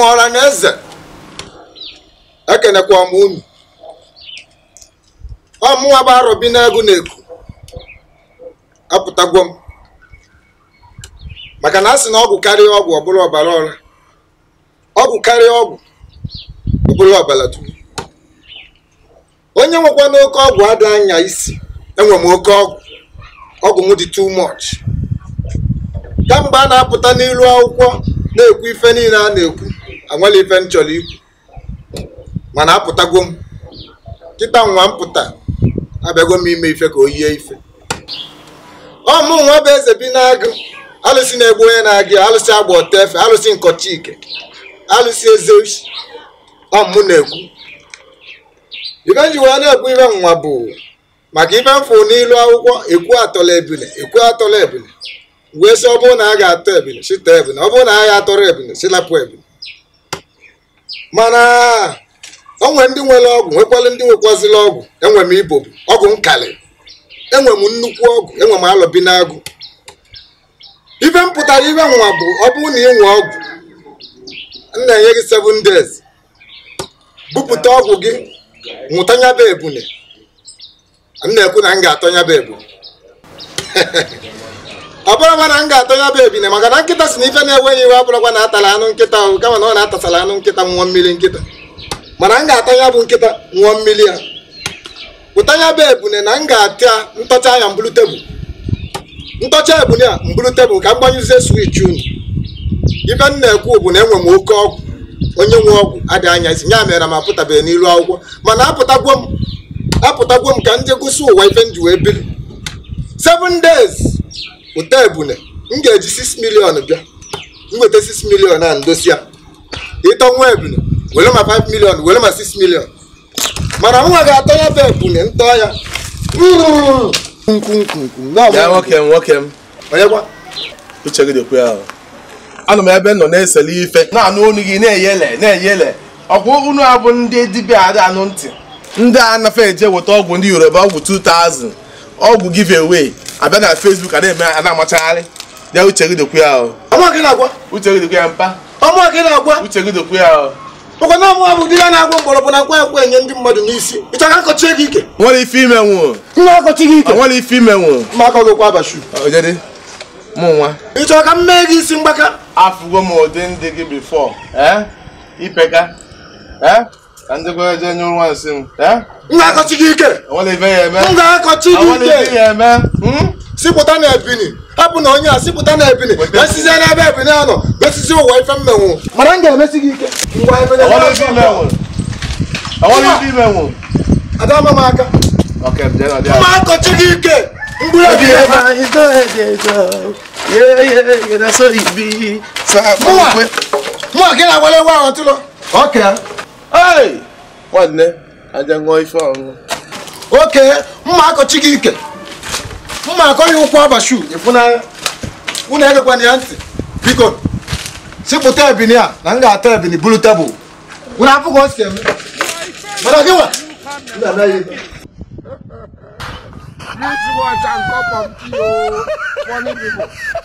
maọra na eze ekenekwa ọmụ unu ọmụnwa bụ arọbi n'ego na eku apụtagwo m maka na a sị na ọgwụ karịa ọgwụ ọ ọbara ọra ọgwụ karịa ọgwụ ọ ọbara dum onye nwekwa n'oke ọgwụ adị anya isi enwe m oke ọgwụ ọgwụ m dị too much kamgbe a na-apụta n'ilu akwụkwọ na-ekwu ife niile a na-ekwu anwela ife m chọrọ ikwu mana apụtago m kịta nwa m pụta abịago m ime ife ka o yie ife ọ mụ nwa bụ eze bi na alụsị na-egbu onye na-agụ alụsị agba ọta efe alụsị nkọchike alụsị eze ọ mụ na-ekwu ife nji wee na-ekwu ife nwa bụ maka ife mfụ n'ilu akwụkwọ ekwu atọla ebile ekwu atọla ebile wee sị ọ bụrụ na a ga-atọ ebile sita ebile ọ bụrụ na agha ga-atọrọ ebile silapụ ebile mana onwe ndị nwere ọgwụ nwekwala ndị nwekwazịla ọgwụ enwe m ibobu ọgwụ nkàlị enwe m nnukwu ọgwụ enwe m alọbi n'agụ ife m ife nwa bụ ọ bụrụ na ịnwe ọgwụ m na-enye gị 7 days bupụta ọgwụ gị nwụtanyaba ebune m na-ekwu na m ga-atọnyaba ebune abụrụkwa na m ga ya bụ ebine maka na nkịta si na ife na-enweghị iwe abụrụkwa na atala anụ nkịta ahụ kama na ọ na-atasala anụ nkịta nwụọ mmiri nkịta mana m ga-atọ ya bụ nkịta nwụọ mmiri ya pụta ya bụ ebune na m ga-atịa ntọcha ya mbụrụ tebụl ntọcha ebune a mbulu tebụl ka m gbanyụzie swich unu ife m na-ekwu bụ na enwe m oke ọgwụ onye nwe ọgwụ adịghị anya isi ya mere m apụtabeghị n'ilu akwụkwọ mana apụtagwo m apụtagwo m ka m gụsị ụwa ife m ji wee biri seven days ụta ebune m ga-eji 6 milion bịa m 6 milion a ndosi ịtọ nwa ebune were ma 5 milion were ma 6 milion mana nwa ga-atọ ya bụ ebune ntọ ya uche gị anọ m ebe nọ na-esele ife na-anụ olu gị na-eyele na-eyele ọkwa unu bụ ndị dibịa ada anụ ntị ndị anafe eje weta ọgwụ ndị yoruba ọgwụ 2000 ọgwụ give away abịa na Facebook a na-eme a na-amachagharị ya uche gị dokwe ya ọ. uche gị dokwe ya mpa uche gị dokwe ya maka na ọmụ bụ di ya na-agwọ mgbọrọgwụ na nkwa nkwa enye ndị mmadụ n'isi ị chọrọ akọchi gị ike nwere ife ime nwụọ nwa akọchi gị ike nwere ife ime nwụọ ma akọ gị kwa abashu ojede mụ nwa ị chọrọ ka m mee gị isi mgbaka afụgo m ụdị ndị gị bifọ ee ipeka ee ndị kwa eje nye nwa nsị m nlekọchi gị ike nlekọchi gị ike hmm? sipụta na ebini hapụ na onye a sipụta na ebini esizi n'ebe ebini a nọ besizi ụwa ife mmenwu mana m ga-emesi gị ike ngwa ebene adama m aka mma akọchi gị ike mgburu ebi mụwa gị na-agwala ewe ahụ tụlọ ọka nwanne aja ṅụọ ife ọṅụṅụ oke mma akọchi gị ike mma akọ ya ụkwụ abashu ịfụnanya unu ya ntị biko sipụta ebini a na m ga-ata ebini buru tebụl unu apụghị osi eme mana gị nwa Beautiful and funny people.